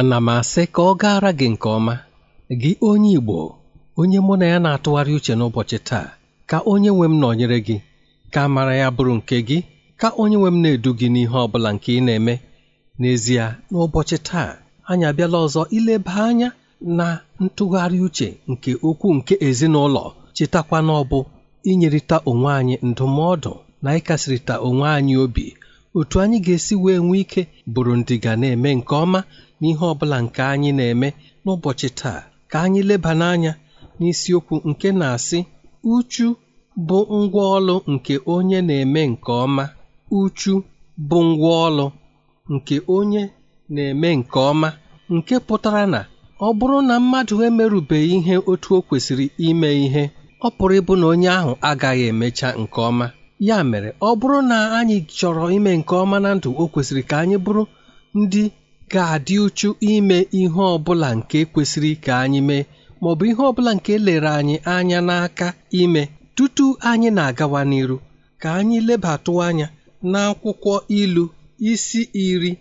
ana m asị ka ọ gaara gị nke ọma gị onye Igbo onye mụ na ya na-atụgharị uche n'ụbọchị taa ka onye nwe m nọnyere gị ka mara ya bụrụ nke gị ka onye nwe m na-edu gị n'ihe ọ bụla nke ị na-eme n'ezie n'ụbọchị taa anyị abịala ọzọ ileba anya na ntụgharị uche nke ukwu nke ezinụlọ chetakwa n'ọbụ ọ bụ inyerịta onwe anyị ndụmọdụ na ịkasịrịta onwe anyị obi otu anyị ga-esi wee nwee ike bụrụ ndị ga na-eme nke ọma n'ihe ọ bụla nke anyị na-eme n'ụbọchị taa ka anyị leba n'anya n'isiokwu nke na-asị uchu bụ ngwaọlụ nke onye na-eme nke ọma uchu bụ ngwaọlụ nke onye na-eme nke ọma nke pụtara na ọ bụrụ na mmadụ emerubeghị ihe otu o kwesịrị ime ihe ọ pụrụ ịbụ na onye ahụ agaghị emecha nke ọma ya mere ọ bụrụ na anyị chọrọ ime nke ọma na ndụ o kwesịrị ka anyị bụrụ ndị ga-adị uchu ime ihe ọbụla nke kwesịrị ka anyị mee maọbụ ihe ọbụla nke lere anyị anya n'aka ime tutu anyị na-agawa n'iru ka anyị lebatụ anya n'akwụkwọ ilu isi iri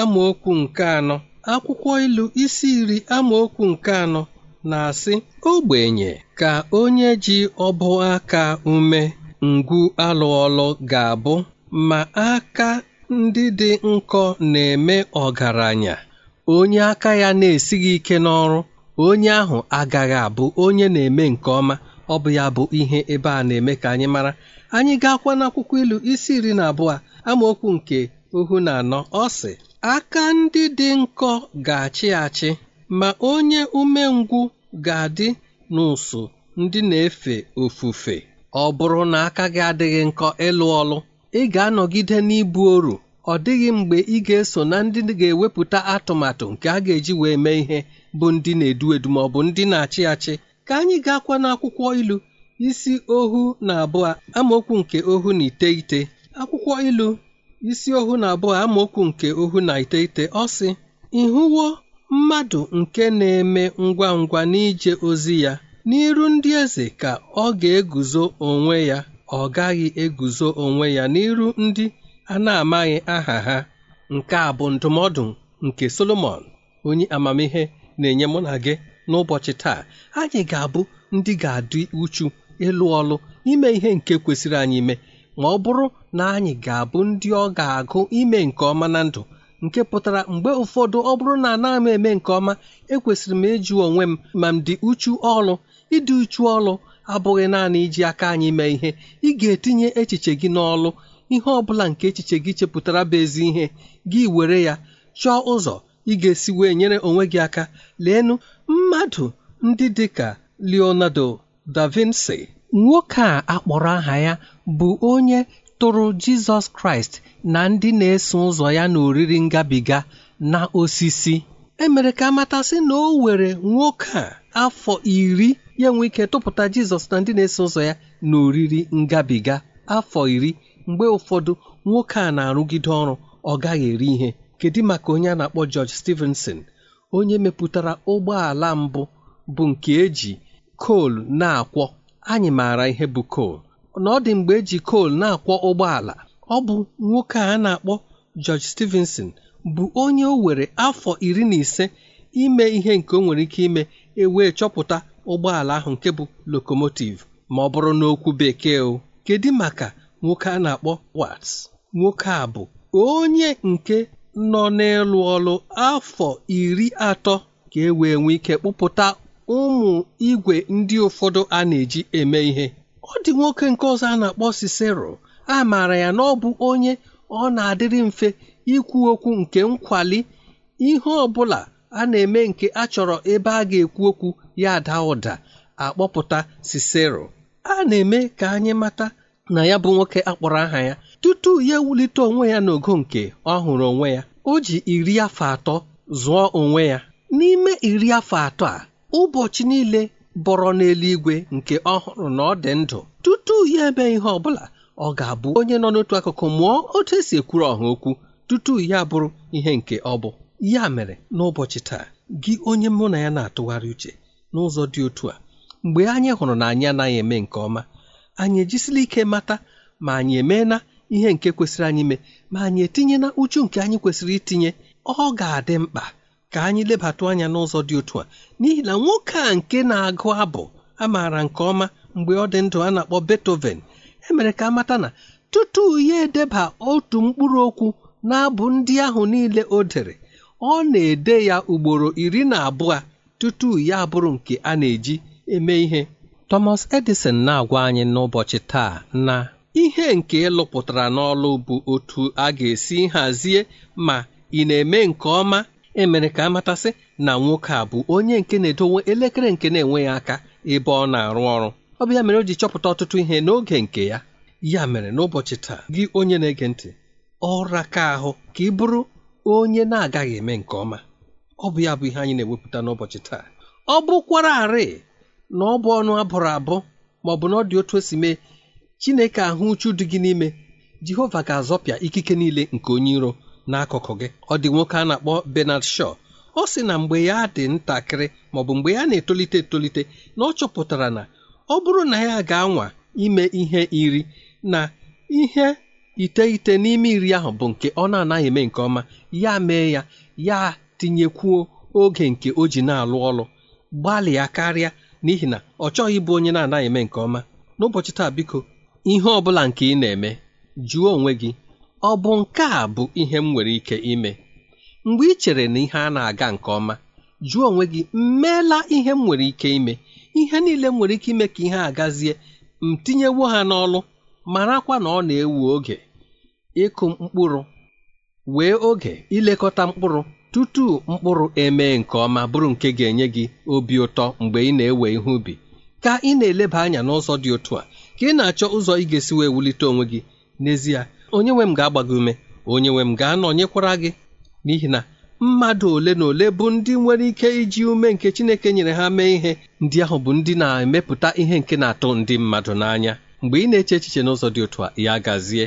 amaokwu nke anọ akwụkwọ ilu isi iri amaokwu nke anọ na-asị ogbenye ka onye ji ọbụ aka ume ngwu alụọlụ ga-abụ ma aka ndị dị nkọ na-eme ọgaranya onye aka ya na-esighị ike n'ọrụ onye ahụ agaghị abụ onye na-eme nke ọma ọ bụ ya bụ ihe ebe a na-eme ka anyị mara anyị ga-akwa n'akwụkwọ ilu isi iri na abụọ amaokwu nke ohu na anọ ọ sị aka ndị dị nkọ ga-achị achị ma onye umengwụ ga-adị n'ụsụ ndị na-efe ofufe ọ bụrụ na aka gị adịghị nkọ ịlụ ọlụ ị ga-anọgide n'ibu oru ọ dịghị mgbe ị ga-eso na ndị ga-ewepụta atụmatụ nke a ga-eji wee mee ihe bụ ndị na-edu edu ma ọ bụ ndị na-achị achị ka anyị ga-akwa n'akwụkwọ ilu isi ohu na abụọ amaokwu nke ohu na iteghete akwụkwọ ilu isi ohu na abụọ amaokwu nke ohu na iteghete ọ sị ịhụwo mmadụ nke na-eme ngwa ngwa n'ije ozi ya n'iru ndị eze ka ọ ga-eguzo onwe ya ọ gaghị eguzo onwe ya n'iru ndị a na-amaghị aha ha nke a bụ ndụmọdụ nke Solomọn onye amamihe na-enye mụ na gị n'ụbọchị taa anyị ga-abụ ndị ga-adị uchu ịlụ ọlụ ime ihe nke kwesịrị anyị ime ma ọ bụrụ na anyị ga-abụ ndị ọ ga-agụ ime nke ọma na ndụ nke pụtara mgbe ụfọdụ ọ bụrụ na anaghị m eme nke ọma ekwesịrị m ịjụ onwe m ma m dị uchu ọlụ ịdị uchu ọlụ abụghị naanị iji aka anyị mee ihe ị ga-etinye echiche gị n'ọlụ ihe ọbụla nke echiche gị chepụtara bụ ezi ihe gị were ya chọọ ụzọ ị ga-esi wee nyere onwe gị aka leenụ mmadụ ndị dị ka Leonardo da Vinci nwoke a akpọrọ aha ya bụ onye tụrụ Jizọs Kraịst na ndị na-eso ụzọ ya na ngabiga na osisi emere ka amatasị na o were nwoke a afọ iri ya nwee ike tụpụta Jizọs na ndị na-eso ụzọ ya na oriri ngabiga afọ iri mgbe ụfọdụ nwoke a na-arụgide ọrụ ọ gaghị eri ihe kedu maka onye a na-akpọ George Stevenson, onye mepụtara ụgbọala mbụ bụ nke eji kol na-akwọ anyị maara ihe bụ kol na ọ dị mgbe eji kol na-akwọ ụgbọala ọ bụ nwoke a na-akpọ George Stevenson, bụ onye o were afọ iri na ise ime ihe nke o nwere ike ime ewee chọpụta ụgbọala ahụ nke bụ lokomotiv ma ọ bụrụ n'okwu bekee o kedu maka nwoke a na-akpọ wats. nwoke a bụ onye nke nọ n'ịlụ ọlụ afọ iri atọ ka e wee nwee ike kpụpụta ụmụ igwe ndị ụfọdụ a na-eji eme ihe ọ dị nwoke nke ọzọ a na-akpọ Cicero a maara ya na ọ bụ onye ọ na-adịrị mfe ikwu okwu nke nkwali ihe ọ bụla a na-eme nke a chọrọ ebe a ga-ekwu okwu ya ada ụda akpọpụta Sisera a na-eme ka anyị mata na ya bụ nwoke akpọrọ aha ya tutu ya ewulite onwe ya n'ogo nke ọ hụrụ onwe ya o ji iri afọ atọ zụọ onwe ya n'ime iri afọ atọ a ụbọchị niile bọrọ n'eluigwe nke ọ hụrụ na ọ dị ndụ tutu ya eme ihe ọ bụla ọ ga-abụ onye nọ n'otu akụkụ mụọ otu esi ekwuru ọha okwu tutu ya bụrụ ihe nke ọ bụ ya mere n'ụbọchị taa gị onye mụ na ya na-atụgharị uche n'ụzọ dị otu a mgbe anyị hụrụ na anyị anaghị eme nke ọma anyị ejisila ike mata ma anyị emeela ihe nke kwesịrị anyị ime ma anyị etinyela uchu nke anyị kwesịrị itinye ọ ga-adị mkpa ka anyị lebatụ anya n'ụzọ dị otu a n'ihi na nwoke a nke na-agụ abụ amaara nke ọma mgbe ọ dị ndụ a na-akpọ Beethoven emere ka amata na tutu ya edeba otu mkpụrụ okwu na abụ ndị ahụ niile o dere ọ na-ede ya ugboro iri na abụọ tutu ya bụrụ nke a na-eji eme ihe Thomas Edison na-agwa anyị n'ụbọchị taa na ihe nke ịlụpụtara n'ọlụ bụ otu a ga-esi hazie ma ị na-eme nke ọma emere ka amatasị na nwoke a bụ onye nke na-edowe elekere nke na-enweghị aka ebe ọ na-arụ ọrụ ọ bụ ya mere o ji chọpụta ọtụtụ ihe n'oge nke ya ya mere n'ụbọchị taa gị onye na-ege ntị ọra ka ahụ ka ị bụrụ onye na-agaghị eme nke ọma ọ bụ ya bụ ihe anyị na-ewepụta n'ụbọchị taa ọ bụkwara arị na ọ bụ ọnụ abụrụ abụ ma ọ bụ na ọ dị otu o si mee Chineke ahụ uchu dị gị n'ime Jehova ga-azọpịa ikike niile nke onye iro n'akụkụ gị ọ dị nwoke a na-akpọ Bernard Shaw ọ sị na mgbe ya dị ntakịrị ma ọ bụ mgbe ya na-etolite etolite na ọ chọpụtara na ọ bụrụ na ya ga-anwa ime ihe iri na ihe ite n'ime iri ahụ bụ nke ọ na-anaghị eme nke ọma ya mee ya ya tinyekwuo oge nke o ji na-alụ ọlụ gbalịa karịa n'ihi na ọ chọghị ịbụ onye na-anaghị eme nke ọma n'ụbọchị taa biko ihe ọ bụla nke ị na-eme jụọ onwe gị ọ bụ nke a bụ ihe m nwere ike ime mgbe ị chere na ihe a na-aga nke ọma jụọ onwe gị mmeela ihe m nwere ike ime ihe niile m nwere ike ime ka ihe a gazie m tinyewo ha n'ọlụ marakwa na ọ na-ewu oge ịkụ mkpụrụ wee oge ilekọta mkpụrụ tutu mkpụrụ emee nke ọma bụrụ nke ga-enye gị obi ụtọ mgbe ị na-ewe ihe ubi ka ị na-eleba anya n'ụzọ dị otu a ka ị na-achọ ụzọ ị ga-esi wee wulite onwe gị n'ezie onye nwe m ga-agba gị ume onye nwe m ga-anọnyekwara gị n'ihi na mmadụ ole na ole bụ ndị nwere ike iji ume nke Chineke nyere ha mee ihe ndị ahụ bụ ndị na-emepụta ihe nke na-atụ ndị mmadụ n'anya mgbe ị na-eche echiche n'ụzọ dị otu a ya gazie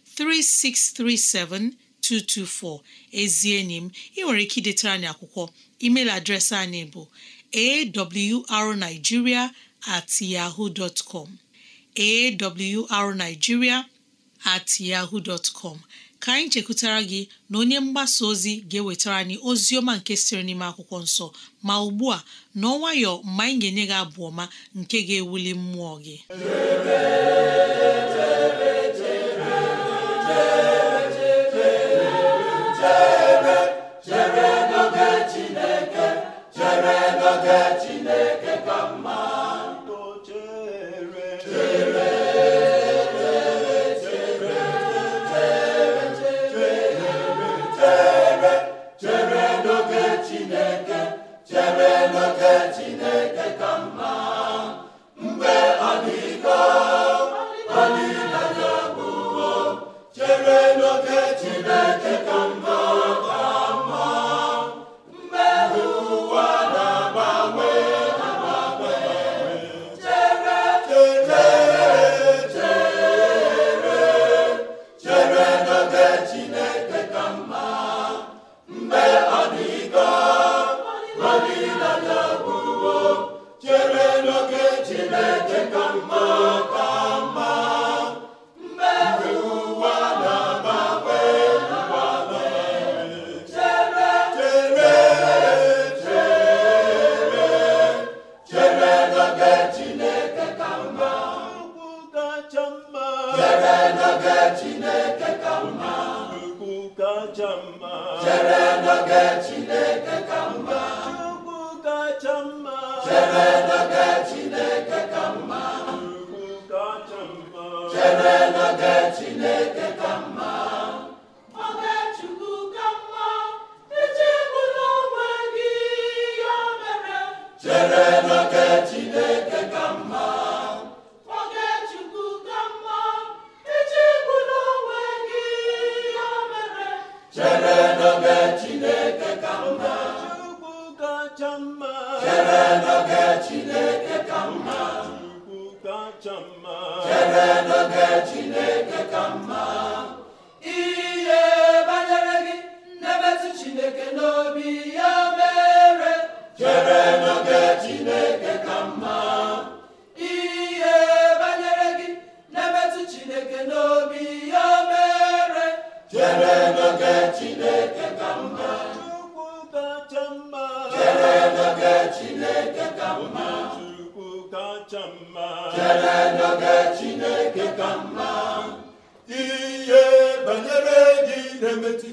3637224 ezi enyi m ị nwere ike idetara anyị akwụkwọ email adreesị anyị bụ arigiria at yahoo dot at yahoo dot com ka anyị chekwutara gị na onye mgbasa ozi ga-ewetara anyị ozi ọma nke siri n'ime akwụkwọ nsọ ma ugbu a n'ọnwayọ mgbe anyị ga-enye gị abụ ọma nke ga-ewuli mmụọ gị chineke chere n'oge chineke n'oge Chineke ka mma Chukwu kacha mma chere n'oge Chineke ka mma Chukwu kacha mma chere n'oge Chineke ka mma Chukwu kacha mma chere n'oge Chineke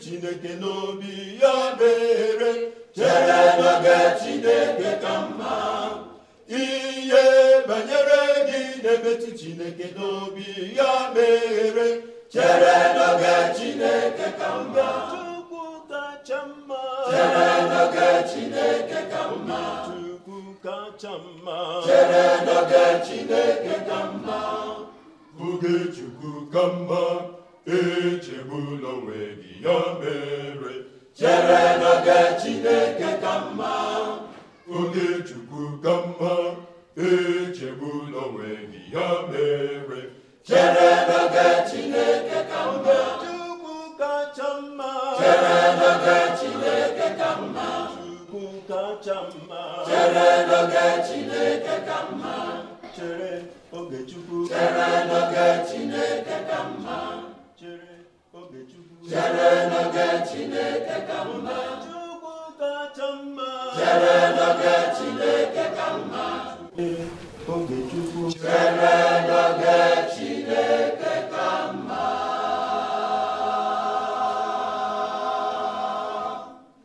chineke n'obi ya mere chere n'oge chineke ka mma ihe banyere gị na-emetụ chineke n'obi ya mere chere n'oge chineke ka mma chukwu kacha mma chere n'oge chineke ka mma chukwu kacha mma chere n'oge chineke ka mma oge chukwu ka mma echegbula onwe gị ya mere chere n'oge Chineke ka mma oge kudo n'oge Chineke ka mma mma n'oge Chineke ka mma n'oge Chineke ka mma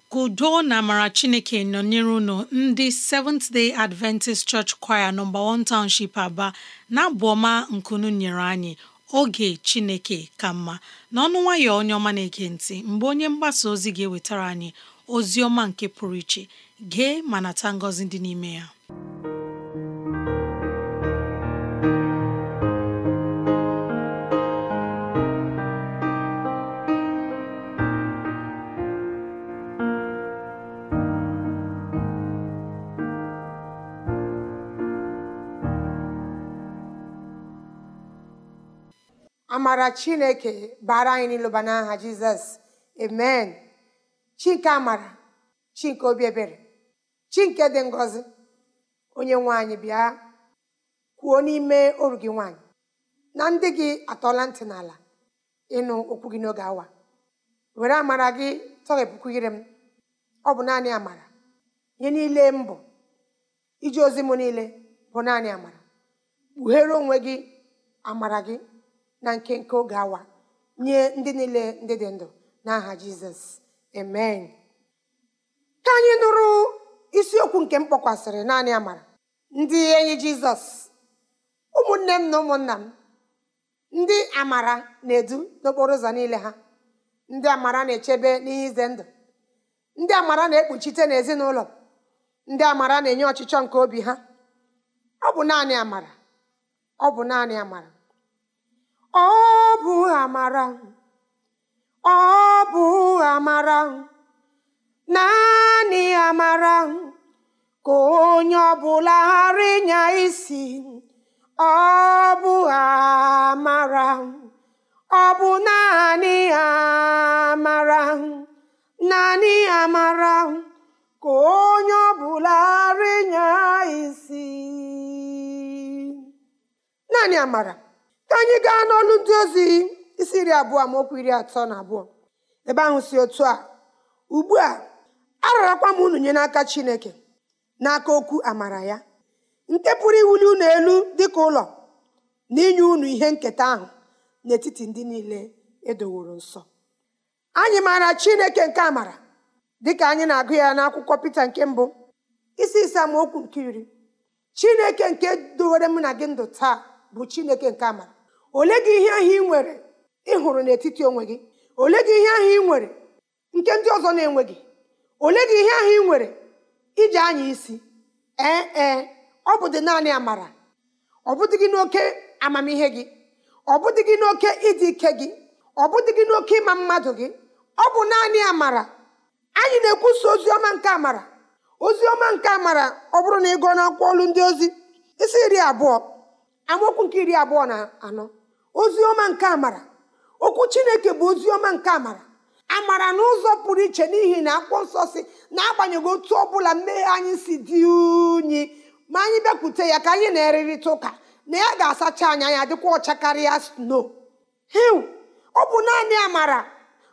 ka na amara Chineke nọnyere unu ndị Seventh Day Adventist Church Choir nọmba 1 Township Aba na abụ ọma nkunu nyere anyị oge Chineke ka mma n'ọnụ nwayọ onye ọma na-ege ntị mgbe onye mgbasa ozi ga-ewetara anyị ozi ọma nke pụrụ iche gee ma nata ngọzi dị n'ime ya amara chineke bara anyị n'ịlụba n'aha jizọs amen chinke amara chinke obi ebere chinke dị ngozi onye nwanyị bịa kwuo n'ime oru gị nwaanyị na ndị gị atọla ntị n'ala ịnụ okwu gị n'oge awa were amara gị tọghepụkwu ire m ọ bụ naanị amara ihe niile mbụ iji ozi m niile bụ naanị amara kpughere onwe gị amara gị na nke nke oge awa nye ndị niile ndị dị ndụ n'aha jizọs amen ka anyị nụrụ isiokwu nke m kpọkwasịrị naanị amara ndị enyi jizọs ụmụnne m na ụmụnna m ndị amara na-edu n'okporo ụzọ niile ha ndị amara na-echebe n'ihe ize ndụ ndị amara na-ekpuchite n'ezinụlọ ndị amara na-enye ọchịchọ nke obi ha ọ bụ naanị amara ọ bụ naanị amara ọ bụ amara ọ bụ amara naanị amara ka onye ọbụla ghara ịnya isi ọ bụ amara ọ bụ naanị amara naanị amara ka onye ọbụla ghara ịnya isi naanị amara ka anyị gaa n'ọlụ ndị ozi isi iri abụọ amaokwu iri atọ na abụọ ebe ahụ si otu a ugbu a ararakwa m unu nye n'aka chineke n'aka okwu amara ya nke pụrụ iwuli unu elu dịka ụlọ na inye unu ihe nketa ahụ n'etiti ndị niile edoworo nsọ anyị maara chineke nke amara dịka anyị na-agụ ya n'akwụkwọ Pita nke mbụ isi ma amaokwu nke iri chineke nke dowere m na gị ndụ taa bụ chineke nke amara ole gị ihe ahụ ị nwere ịhụrụ n'etiti onwe gị ole gị ihe ahụ ị nwere nke ndị ọzọ na-enweghị ole gị ihe ahụ ị nwere iji anya isi ee ee ọ bụ dị naanị amara ọ bụdị gị n'oke amamihe gị ọ bụdị gị n'oke ịdị ike gị ọ bụdị gị n'oke ịma mmadụ gị ọ bụ naanị amara anyị na-ekwusa ozi ọma nke amara ozi ọma nke amara ọ bụrụ na ị gụọ n'akwụkwọ olu ndị ozi isi iri abụọ amaokwu nke iri abụọ na anọ ozi ọma nke amara okwu chineke bụ ozi ọma nke amara amara n'ụzọ pụrụ iche n'ihi na akwụkwọ nsọ si na-agbanyeghị otu ọ bụla mmehie anyị si dị unyi ma anyị bịakwute ya ka anyị na-erịrịta ụka na ya ga-asacha anya ya dịkwa ọcha karịa sno hiu ọ bụ naanị amara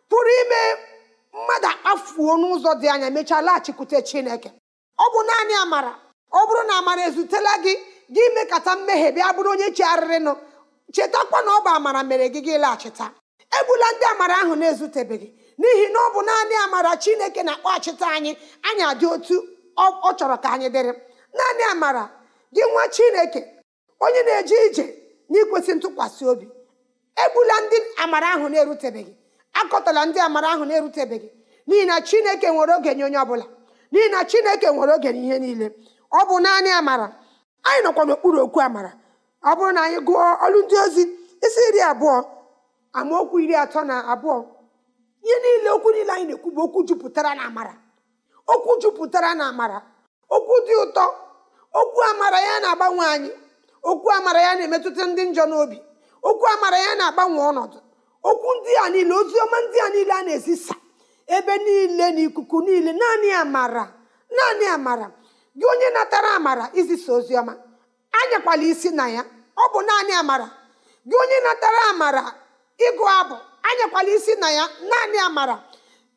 pụrụ ime mmadụ akpafuo n'ụzọ dị anya mechaa laghachikwute chineke ọ bụ naanị amara ọ bụrụ na amara ezutela gị gị mekata mmehie bịa bụrụ onye chigharịrịnụ chetakwa na ọ bụ amara mere gị gị laghachịta egbula ndị amara ahụ na-ezutebeghị n'ihi na ọ bụ naanị amara chineke na akpa achịta anyị anyị adị otu ọ chọrọ ka anyị dịrị naanị amara gị nwa chineke onye na-eje ije n'ikwesị ntụkwasị obi egbula ndị amara ahụ na-erutebeghị akọtala ndị amara ahụ na-erutebeghị n'ihi na chineke nwere oge nye onye ọbụla n'ihi na chineke nwere oge n'ihe niile ọ bụ naanị amara anyị nọkwa n'okpuru okwu amara ọ bụrụ na anyị gụọ ọrụ ndị ozi isi iri abụọ amaokwu iri atọ na abụọ ihe niile okwu niile anyị na-ekwu bụ okwu jupụtara na amara okwu jupụtara na amara okwu dị ụtọ okwu amara ya na-agbanwe anyị okwu amara ya na-emetụta ndị njọ n'obi okwu amara ya na-agbanwe ọnọdụ okwu ndị a niile ozi ọma ndị a niile a na-ezisa ebe niile na ikuku niile naanị amara naanị amara gị onye natara amara izisa ozi ọma anyakwala isi na ya ọ bụ naanị amara gị onye natara amara ịgụ abụ anyakwala isi na ya naanị amara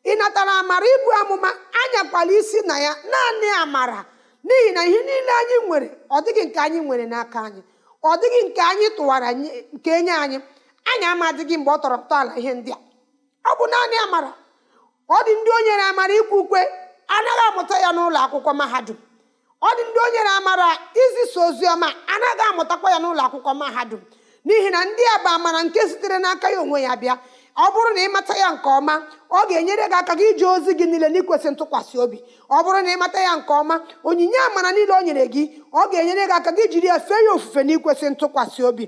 ị natara amara ịbụ amụma anyakwala isi na ya naanị amara n'ihi na ihe niile anyị nwere ọ dịghị nke anyị nwere n'aka anyị ọ dịghị nke anyị tụwara nke enye anyị anyị ama mgbe ọ tọrọ ntọala ihe ndị a ọ bụ naanị amara ọ dị ndị o nyere amara ikwu ukwe anaghị amụta ya n'ụlọ akwụkwọ mahadum ọ dị ndị onye na-amara izisa oziọma anaghị amụtakwa ya n'ụlọ akwụkwọ mahadum n'ihi na ndị a bụ amara nke sitere n'aka ya onwe ya bịa ọ bụrụ na ịmata ya nke ọma ọ ga-enyere gị aka gị ije ozi gị niile n'ikwesị ntụkwasị obi ọ bụrụ na ịmata ya nke ọma onyinye amara niile o nyere gị ọ ga-enyere gị aka gị jiri ya fee ya ofufe na ikwesị ntụkwasị obi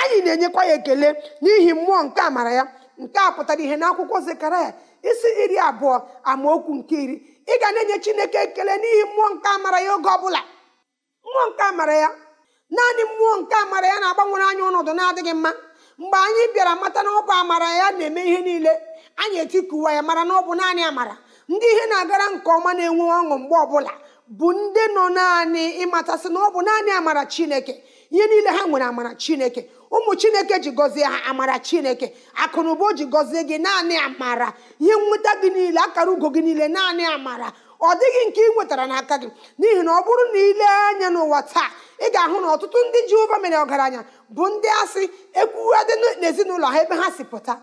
anyị na-enyekwa ya ekele n'ihi mmụọ nke amara ya nke a pụtara ihe n'akwụkwọ Zekaraya isi iri abụọ amaokwu nke iri ị ga na-enye chineke ekele n'ihi mmụọ nke amara ya oge ọbụla mmụọ nke amara ya naanị mmụọ nke amara ya na-agbanwere anyị ọnọdụ na-adịghị mma mgbe anyị bịara mata na ọ amara ya na-eme ihe niile anyị etikuwa ya mara na ọ bụ naanị amara ndị ihe na-agara nke ọma na-enwe ọṅụ mgbe ọbụla bụ ndị nọ naanị ịmatasị na ọ bụ naanị amara chineke ihe niile ha nwere amara chineke ụmụ chineke ji gọzie ha amara chineke akụnụba o ji gọzie gị naanị amara ihe nweta gị niile akara ugo gị niile naanị amara ọ dịghị nke ị nwetara n'aka gị n'ihi na ọ bụrụ na ile anya n'ụwa taa ị ga-ahụ na ọtụtụ ndị Jehova mere ọgaranya bụ ndị asị ekwuadị n'ezinụlọ ha ebe ha si pụta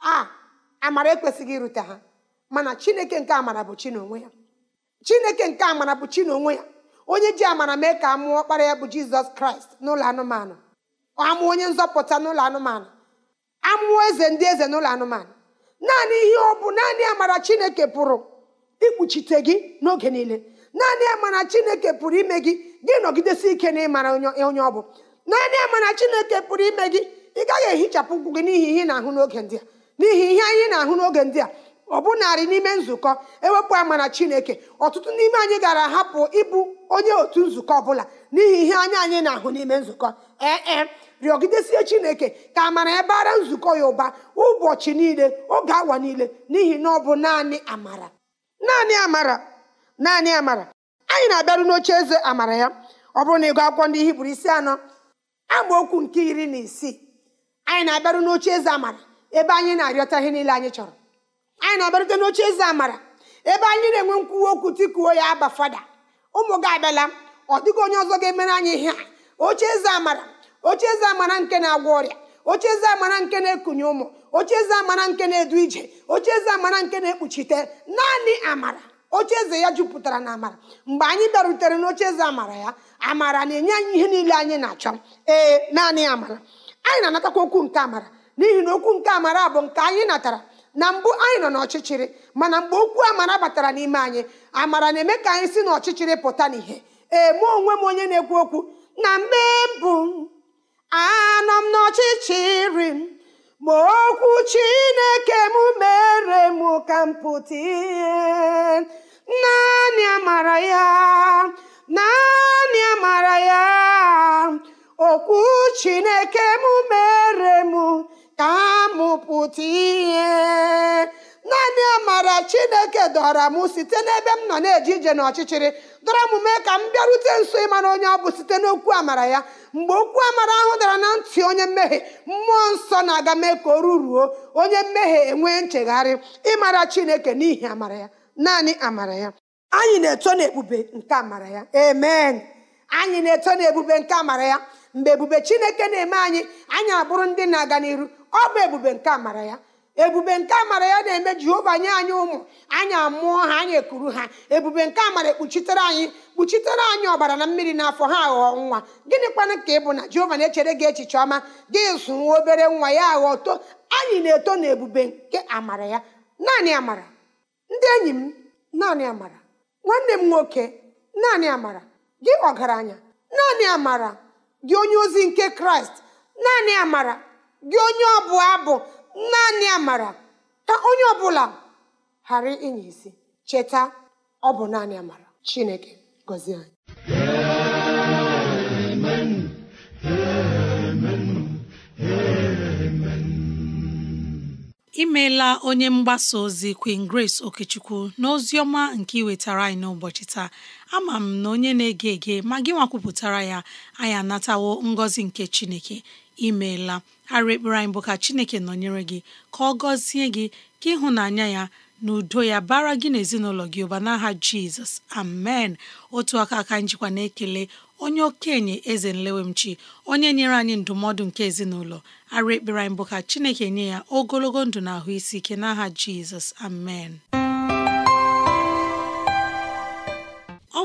a amara ekwesịghị irute ha mana chineke nke amara bụ chi n'onwe ya chineke nke amara bụ ya onye ji amara mee ka a mụọ ọkpara ya bụ jizọs kraịst n'ụlọ anụmanụ amụọ onye nzọpụta n'ụlọ anụmanụ amụọ eze ndị eze n'ụlọ anụmanụ naanị ihe ọ bụ naanị amara chineke pụrụ ikpuchite gị n'oge niile naanị amara chineke pụrụ ime gị gị nọgidesi ike n'ịmara onye ọ bụ naanị amara chineke pụrụ ime gị ị gaghị ehichapụ ụkwụ gị n'ihi ihe ị na-ahụ n'oge ndị a n'ihi ihe anyị na-ahụ n'oge ndị a ọ bụ narị n'ime nzukọ ewepụ amara chineke ọtụtụ n'ime anyị gara ahapụ ịbụ onye otu nzukọ bụla n'ihi ihe anya anyị na-ahụ n'ime nzukọ ee eh, eh. rịọgidesie chineke ka amara ya bara nzukọ ya ụba ụbọchị niile oge awa niile n'ihi na ọ bụ naanị amara naanị amara naanị amara anyị na-abịaru n'oche eze amara ya ọ bụrụ na ịgụ akwụkwọ ndị hibru isi anọ okwu nke iri na isii anyị na-abịaru n'oche eze amara ebe anyị na-arịọta ihe niile anyị chọrọ anyị na-abịarute n'oche eze amara ebe anyị na-enwe nkwuwa okwu tikuo ya aba fada ụmụ gị abịala ọ dịghị onye ọzọ ga-emere anyị ihe a oche eze amara oche eze amara nke na-agwọ ọrịa oche eze amara nke na-ekunye ụmụ oche eze amara nke na-edu ije oche eze amara nke na-ekpuchite naanị amara oche eze ya jupụtara na amara mgbe anyị bịarutere eze amara ya amara na-enye anyị ihe niile anyị na-achọ ee naanị amara anyị na-anatakwa okwu nke amara n'ihi na okwu nke amara bụ nke anyị natara na mbụ anyị nọ n'ọchịchịrị mana mgbe okwu amara batara n'ime anyị amara na-eme ka anyị si n'ọchịchịrị pụta n'ihe ee mụ onwe m onye na-ekwu okwu na mbe mbụ anọ m n'ọchịchịrị m ma okwu chineke m mere m ka m pụta ihe naanị amara ya naanị amara ya okwu chineke m mere m ka m pụta ihe naanị amara chineke dọra m site n'ebe m nọ na-eje ije n'ọchịchịrị dọra m mee ka m bịarute nso ịmara onye ọ bụ site n'okwu amara ya mgbe okwu amara ahụ dara na ntị onye mmehie mmụọ nsọ na-aga mee ka o ruruo onye mmehie enwee nchegharị ịmara chineke n'ihi amara ya naanị amara ya anyị na-eto n'ebube nke amara ya amen anyị na-eto n'ebube nke amara ya mgbe ebube chineke na-eme anyị anyị abụrụ ndị na-aga n'iru ọ bụ ebube nke amara ya ebube nke amara ya na-eme jehova nye anyị ụmụ anyị amụọ ha anyị ekuru ha ebube nke amara ekpuchitere anyị kpuchitere anyị ọbara na mmiri n'afọ ha aghọọ nwa gịnị kwanụ ka ị bụ na jehova na-echere gị echiche ọma gị zụ obere nwa ya aghọọ to anyị na-eto na ebube nke amara ya naanị amara ndị enyi m naanị amara nwanne m nwoke naanị amara gị ọgaranya naanị amara gị onye ozi nke kraịst naanị amara gị onye ọbụ abụ naanị amara ka onye ọbụla ghara inye isi cheta ọ bụ naanị amara chineke gọzie anyị imeela onye mgbasa ozi Queen Grace Okechukwu n'ozi ọma nke iwetara anyị n'ụbọchị taa ama m na onye na-ege ege ma gị nwa kwupụtara ya anyị anatawo ngọzi nke Chineke imeela arụ ekpere anyị bụ ka chineke nọnyere gị ka ọ gọzie gị ka ịhụnanya ya na udo ya bara gị n'ezinụlọ gị ụba n'aha jizọs amen otu aka aka njikwa na-ekele onye okenye eze nlewemchi onye nyere anyị ndụmọdụ nke ezinụlọ arụ ekpere bụ ka chineke nye ya ogologo ndụ na ahụ isi ike n'aha jizọs amen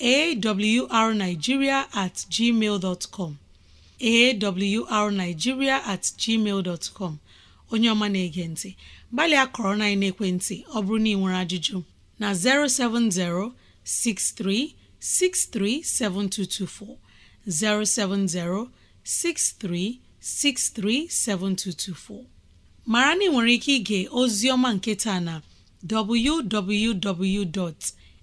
arigiria at gmail com arigiria at gmail com onye ọma na-ege ntị gbalịa kọrọ na naekwentị ọ bụrụ na ị nwere ajụjụ na 070 7224. 070-6363-7224 mara na ị nwere ike ịga ozi ọma nketa na www.awr.org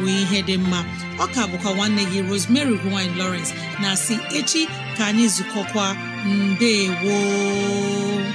bụ ihe dị mma ọka bụkwa nwanne gị Rosemary gine lowrence na si echi ka anyị zukọkwa mbe gboo